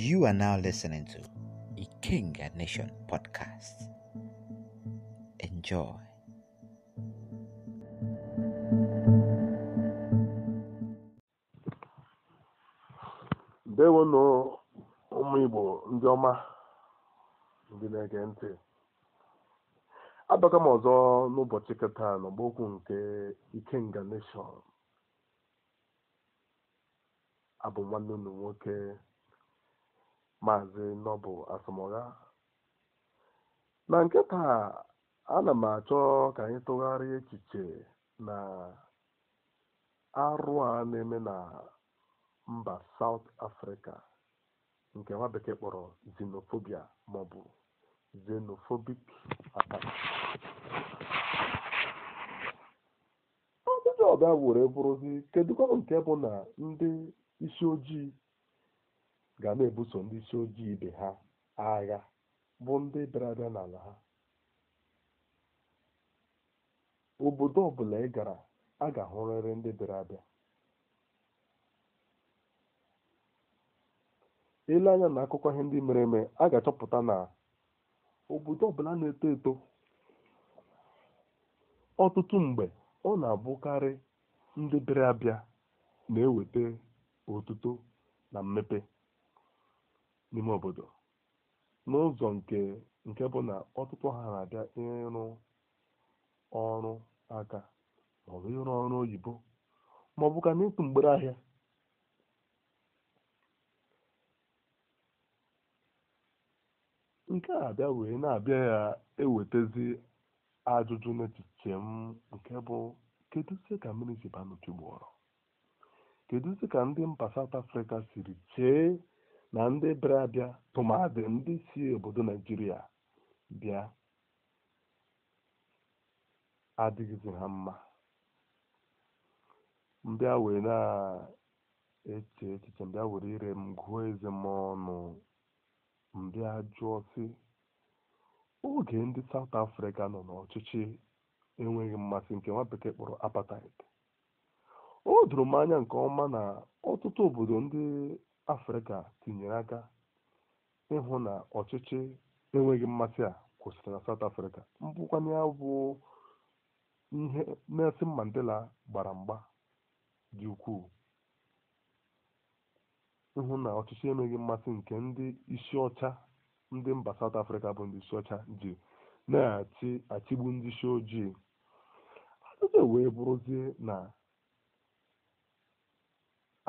You are now listening to the King and Nation podcast. Enjoy. ndewonụ ụmụ igbo ndị ọma ndị na-ege ntị abaka m ọzọ n'ụbọchị kịta n'ọgbokwu nke ikenga nation abụ nwanne unu nwoke Maazị Noble Asomugha. Na nke taa ana m achọ ka anyị tụgharịa echiche na arụ a na-eme na mba sawụt afrịka nke nwa bekee kpọrọ xenophobia maọbụ xenophobic attack. Ajụjụ ọbịa were bụrụzi kedukwa nke bụ na ndị isi ojii ga na-ebuso ndị isi ojii ibe ha agha bụ ndị bịara abịa n'ala ha obodo ọbụla ị gara a ga-ahụrịrị ndị bịara abịa ele anya na akụkọ ihe ndị mere eme a ga-achọpụta na obodo ọbụla na-eto eto ọtụtụ mgbe ọ na-abụkarị ndị bịara abịa na-eweta otuto na mmepe n'ime obodo n'ụzọ nke nke bụ na ọtụtụ ha na-abịa ịrụ ọrụ aka maọbụ ịrụ ọrụ oyibo maọbụ ka n'ịtụ mgbere ahịa nke a abịa wee na-abịa ya ewetezi ajụjụ n'echiche m nke bụ kedu isi ka mmiri si ba kedu ka ndị mba saut afrịka siri chee na ndị bịara abịa tụmadị ndị si obodo naijiria bịa adịghịzi ha mma mbịa wee na-eche echiche mbịa were ire m gụọ eze m ọnụ mbịa jụọ sị oge ndị sawụt afrịka nọ n'ọchịchị enweghị mmasị nke nwa bekee kpọrọ apartheid o doro m anya nke ọma na ọtụtụ obodo ndị afrịka tinyere aka ịhụ na ọchịchị enweghị mmasị a kwụsịrị na saụt afrịka mbụkwanye bụ ihe nelson mandela gbara mgba dị ukwuu ịhụ na ọchịchị enweghị mmasị nke ndị isi ọcha ndị mba saụt afrịka bụ ndị isi ọcha ji na achịgbu ndị isi ojii ajụjụ wee bụrụzie na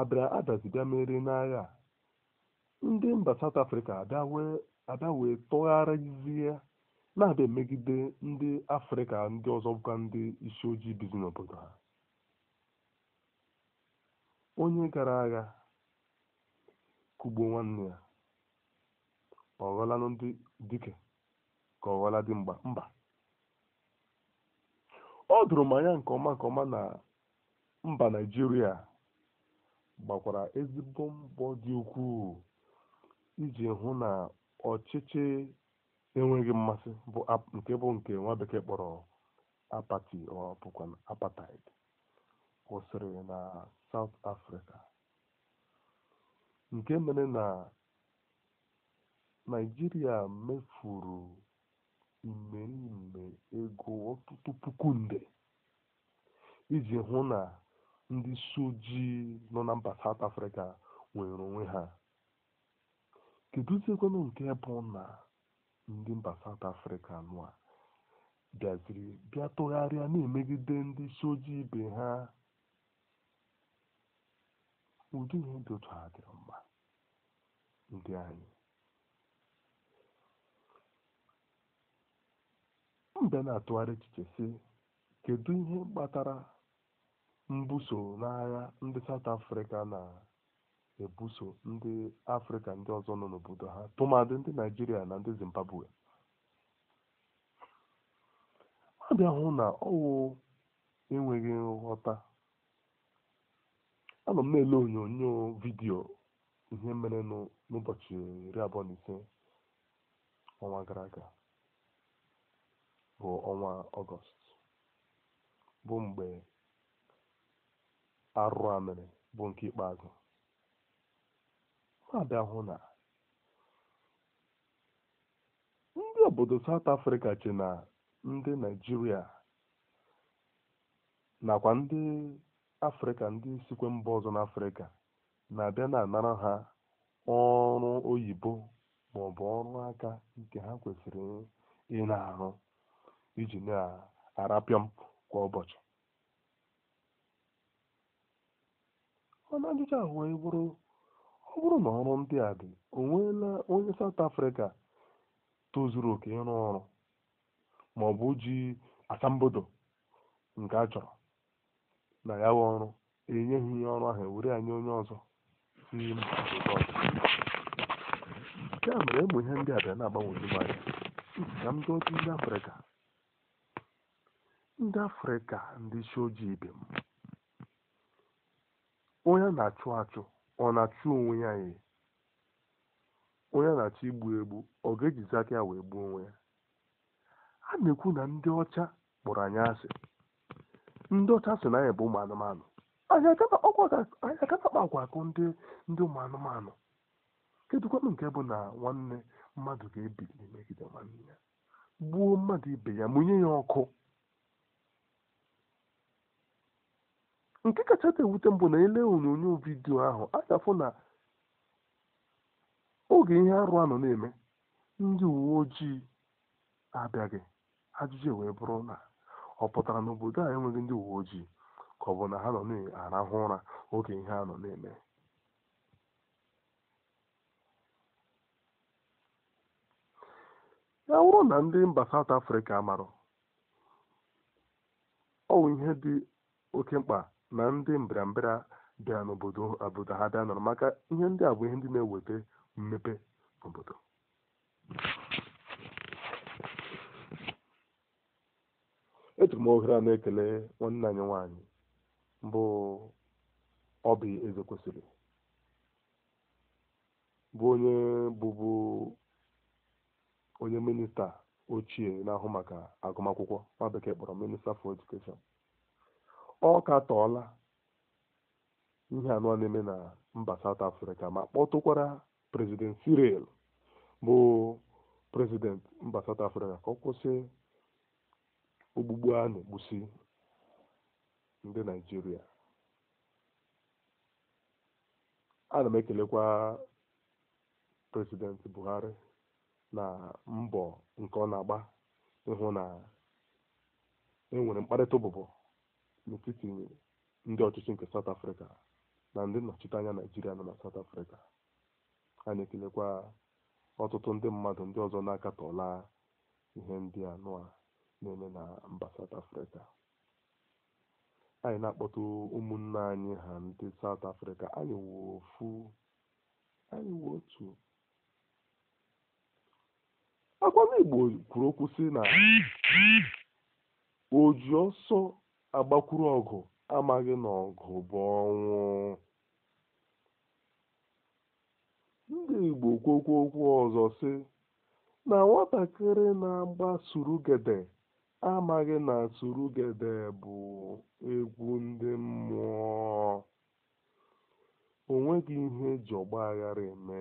abịa bịa mere n'agha ndị mba saụt afrịka abịa wee na-abịa megide ndị afrịka ndị ọzọ bụkwa ndị isi ojii bizi n'obodo ha onye gara agha kugbo nwanne ya ọ ghọla ndị dike ka ọ ghọla dị mgba mba ọ dụrụ m nke ọma nke ọma na mba naijiria gbakwara ezigbo mbọ dị ukwuu iji hụ na ọchịchị enweghị mmasị nke bụ nke nwa bekee kpọrọ apati ọ bụkwa kwụsịrị na sawụt afrịka nke mere na Naịjirịa mefuru imeriime ego ọtụtụ puku nde iji hụ na ndị isi ojii nọ na mba South Africa nwere onwe ha kedụziekwanụ nke bụ na ndị mba South Africa nụa bịaziri bịa tụgharịa na-emegide ndị isi ojii ibe ha ụdị ihe dị otu ha dịrị mma ndị anyị mbe na-atụgharị echiche sị kedu ihe kpatara mbuso n'agha ndị south africa na-ebuso ndị afrịka ndị ọzọ nọ n'obodo ha tụmadị ndị naijiria na ndị zimbabwe a bịa hụ na ọwụ enweghị nghọta nọ m na-ele onyonyo vidiyo ihe mere n'ụbọchị iri abụọ na ise ọnwa gara aga bụ ọnwa ọgọst bụ mgbe arụrụ amịrị bụ nke ikpeazụ na-abịa hụ na ndị obodo South Africa che na ndị Naịjirịa nakwa ndị Afrịka ndị sikwe mba ọzọ n'Afrịka na-abịa na-anara ha ọrụ oyibo ma ọ bụ ọrụ aka nke ha kwesịrị ị na-arụ iji na-arapịọ m kwa ụbọchị mana ajụjụ ahụ wee bụrụ ọ bụrụ na ọrụ ndị a dị o nweela onye saụt afrịka tozuru oke ịrụ ọrụ ma ọ bụ ji asambodo nke a chọrọ na ya wee ọrụ enyeghị ihe ọrụ ahụ ewere anyị onye ọzọ si mba obodo ọzọ nke a mere e ihe ndị a bịa na-agbanweju anya ka ndị otu ndị Afrịka ndị Afrịka ndị isi ojii ibe m onye a na-achụ achụ ọ na-achụ onwe ya ye onye a na-achọ igbu egbu ọ ga-ejizi aka ya wee gbuo onwe ya a na-ekwu na ndị ọcha kpọrọ anyị asị ndị ọcha sị na anyị bụ ụmụ anụmanụ anyị akakpa akwa akụ ndị ụmụ anụmanụ kedụkwanụ nke bụ na nwanne mmadụ ga-ebili megide nwanne ya gbuo mmadụ ibe ya mụnye ya ọkụ nke kachasị ewute mbụ na ele onyonyo vidio ahụ a na oge ihe arụ a nọ na-eme ndị uwe ojii abịaghị ajụjụ wee bụrụ na ọ pụtara n'obodo a enweghị ndị uwe ojii ka ọ bụ na ha nọ na-arahụ ụra oge ihe a nọ na-eme ya bụrụ na ndị mba South Afrịka marụ ọwụ ihe dị oke mkpa na ndị mbịarambịa bịa n'obodo obodo ha bịa nọrọ maka ihe ndị a ihe ndị na-eweta mmepe n'obodo eturu m ohere a na-ekele nwanne anyị nwaanyị bụ ọbi eze kwesịrị bụ onye bụbu onye minista ochie na-ahụ maka agụmakwụkwọ nwa bekee kpọrọ minista for education ọ ka katọọla ihe anọ na-eme na mba South Africa ma kpọtụkwara prezident Cyril bụ prezident mba South Africa ka ọ kwụsị ogbugbu a na-egbusi ndị Naịjirịa na m ekelekwa prezident Buhari na mbọ nke ọ na-agba ịhụ na enwere mkparịta ụbụbọ n'etiti ndị ọchịchị nke South Africa na ndị nnọchiteanya naijiria nọ na South Africa a na-ekelekwa ọtụtụ ndị mmadụ ndị ọzọ na-akatọla ihe ndị anụ a na-eme na mba South Africa anyị na akpọta ụmụnne anyị ha ndị South Africa anyị wụ ofu anyị otu Igbo kwuru okwu si na ji ọsọ agbakwuru ọgụ amaghị na bụ ọnwụ ndị igbo kwokwu okwu ọzọ sị na nwatakịrị na-agba surugede amaghị na surugede bụ egwu ndị mmụọ o nweghị ihe eji aghara eme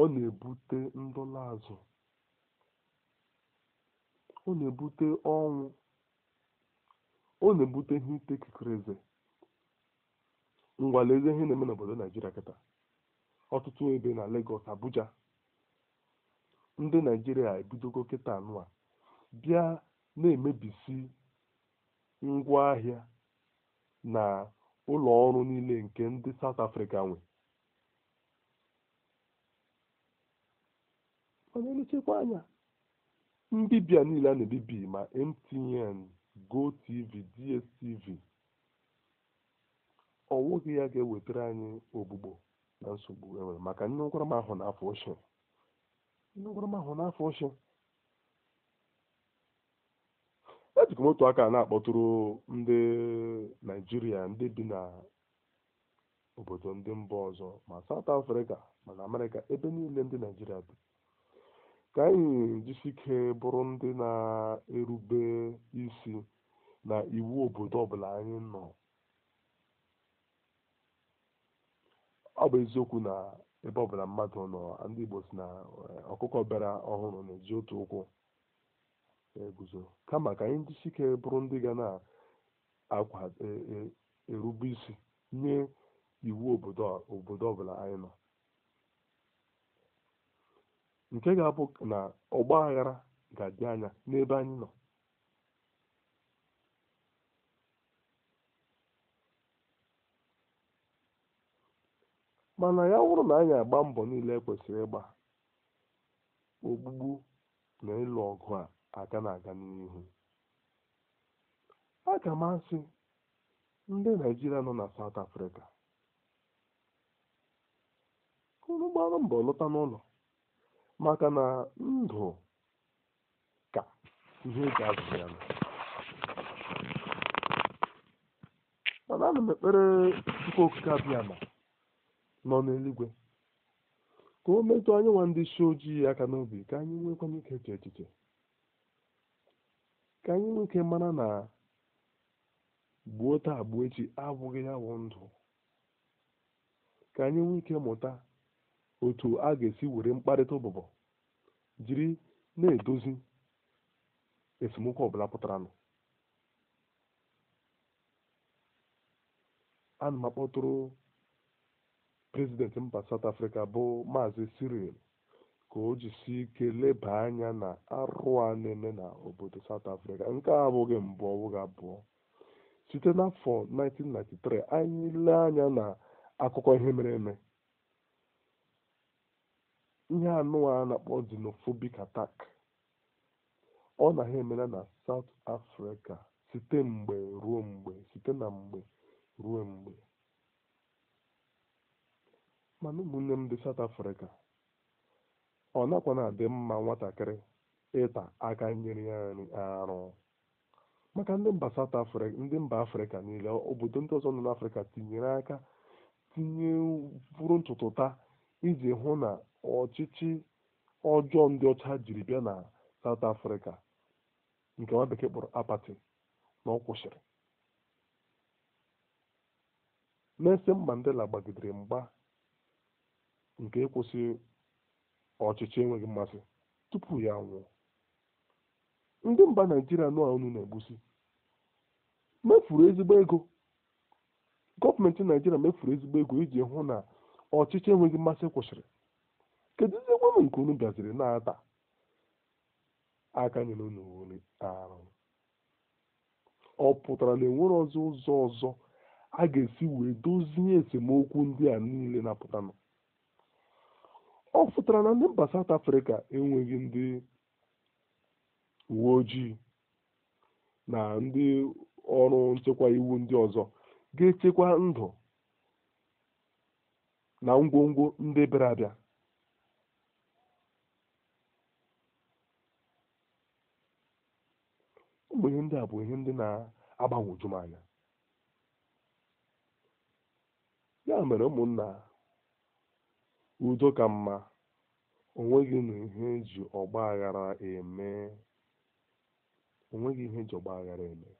ọ na-ebute ndọla azụ ọ na-ebute ọnwụ ọ na-ebute ihe ite kekere eze ngwa lezie ihe na-eme n'obodo naijiria kịta ọtụtụ ebe na Lagos Abuja ndị naijiria ebidogo kịta a bịa na-emebisi ngwaahịa na ụlọ ọrụ niile nke ndị South afrịka nwe mana nchekwa anya mbibia niile a na-ebibi ma MTN, GOTV, DStv ọ ya ga-ewetara anyị ogbugbo na nsogbu enwere maka nne ụkwara e m ahụ n'afọ ochie nne m aka na-akpọtụrụ ndị naijiria ndị bi na obodo ndị mba ọzọ ma South Africa ma na Amerịka ebe niile ndị naijiria bi ka anyị ike bụrụ ndị na-erube isi na iwu obodo ọbụla anyị nọ ọ bụ eziokwu na ebe ọbụla mmadụ nọ ndị Igbo si na eh, ọkụkọ bịara ọhụrụ na-eji otu ụkwụ eguzo kama ka anyị jisike bụrụ ndị ga na-erube eh, eh, isi nye iwu obodo ọbụla anyị nọ nke ga-abụ na ọgba aghara ga-adị anya n'ebe anyị nọ mana ya wụrụ na anyị agba mbọ niile kwesịrị ịgba ogbugbu na ịlụ ọgụ a aga na-aga n'ihu aga m asị ndị naijiria nọ na South Africa unu mbọ lọta n'ụlọ maka na ndụ ka ihe ga azụ ya mana ana m ekpere chukwu okike abịama nọ n'eluigwe ka o metụ anyanwụ nwa ndị isi ojii aka n'obi ka anyị nwekwa ike eche echiche ka anyị nwoke mana mara na gbuo taa gbuo echi abụghị ya bụ ndụ ka anyị nwee ike mụta otu a ga-esi were mkparịta ụbụbọ jiri na-edozi esemokwu ọbụla pụtaranụ ana m akpọtụrụ prezidenti mba saut afrịka bụ maazị Cyril ka o jisi ike leba anya na arụ a na-eme na obodo saut nke a abụghị mbụ ọbụghị abụọ site n'afọ 1993 anyị lee anya na akụkọ ihe mere eme ihe anụ a na-akpọ xenophobic attack ọ na ha emela na South afrịka site mgbe ruo mgbe site na mgbe ruo mgbe mana ụmụnne m dị South Africa ọ nakwa na-adị mma nwatakịrị ịta aka nyere ya nri arụ maka ndị mba South ndị mba Afrịka niile obodo ndị ọzọ nọ n'Afrịka tinyere aka tinye bụrụ ntụtụta iji hụ na ọchịchị ọjọọ ndị ọcha jiri bịa na South afrịka nke nwa bekee kpọrọ apati na ọ kwụsịrị Nelson Mandela gbagidere mgba nke ịkwụsị ọchịchị enweghị mmasị tupu ya nwụọ ndị mba Naijiria nọ unu na-egbusi mefuru ezigbo ego gọọmenti Naijiria mefuru ezigbo ego iji hụ na ọchịchị enweghị mmasị kwụsịrị kedu ihe nke unu bịaziri na-ata aka nyere unu were arụ ọ pụtara na enwere ọzọ ụzọ ọzọ a ga-esi wee dozie esemokwu ndị a niile na-apụtanụ ọ pụtara na ndị mba South Africa enweghị ndị uwe ojii na ndị ọrụ nchekwa iwu ndị ọzọ ga-echekwa ndụ na ngwongwo ndị bịara abịa mgbe ihe ndị a bụ ihe ndị na-agbanwoju m anya ya mere ụmụnna udo ka mma onweghị na ihe eji ọgba aghara eme onweghị ihe eji ọgba aghara eme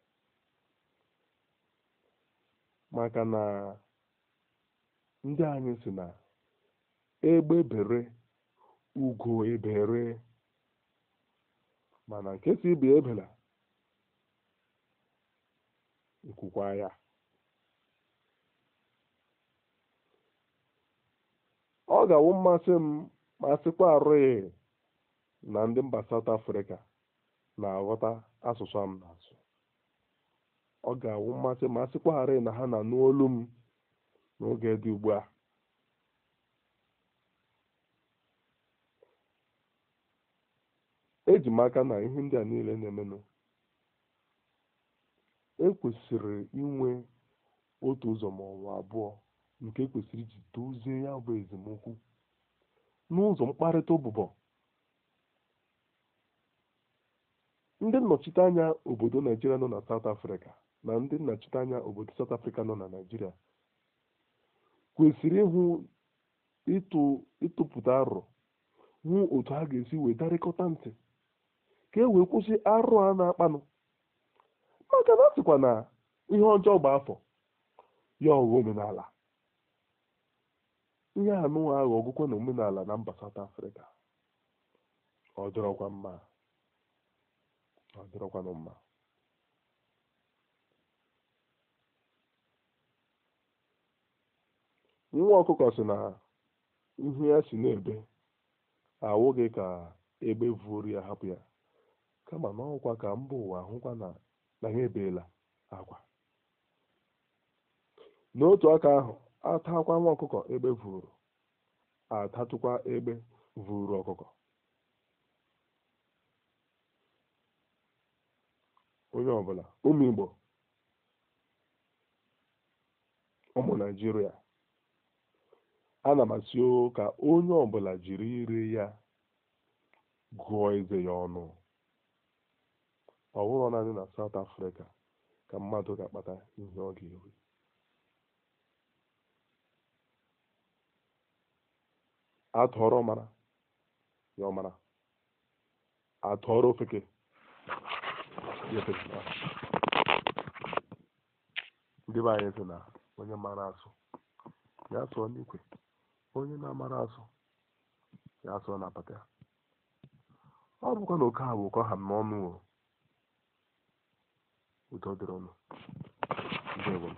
maka na ndị anyị si na egbe bere ugo ebere mana nke si ebela nkwukwa ya ọ ga-awụ mmasị m ma sịkwa arụghị na ndị mba saụt Afrịka na-aghọta asụsụ m na-asụ ọ ga-awụ mmasị ma sịkwa arụghị na ha na-anụ olu m n'oge dị ugbu a eji m aka na ihe ndị a niile na-emenụ ekwesịrị inwe otu ụzọ ma ọ bụ abụọ nke ekwesịrị iji dozie ya bụ ezemokwu n'ụzọ mkparịta ụbụbọ ndị nnọchiteanya obodo naijiria nọ na South Africa na ndị nnọchiteanya obodo South Africa nọ na naijiria kwesịrị ịhụ ịtụpụta arụ hụ otu ha ga-esi wee ntị ka e wee kwụsị arụ a na-akpanụ aka na sịkwa na ihe ọjọọ gba afọ ya ọghọ omenala ihe anụ ahụ ọgụkwa na omenala na mba South Africa ọ mma ọ mma nwa ọkụkọ sị na ihu ya si n'ebe awụghị ka egbe vuoru ya hapụ ya kama n'ọkwa ka mba ụwa hụkwa na na ha ebeela agwa n'otu aka ahụ atakwa nwa ọkụkọ egbe vụrụ atatụkwa egbe vụrụ ọkụkọ onye ọbụla ụmụ Igbo ụmụ Naịjirịa ana m asị ka onye ọbụla jiri ire ya gụọ eze ya ọnụ ọ bụrụ naanị na South Africa ka mmadụ ga-akpata ihe ọ ga-eri atọrọ mara ya ọmara atọrọ ofeke ndị be anyị sị na onye mara asụ ya sụọ n'ikwe onye na-amara asụ ya sụọ na apata ọ bụkwa na oke ha bụ ụkọ ha n'ọnụ ụdụ dịrụ ọnụ dị egbem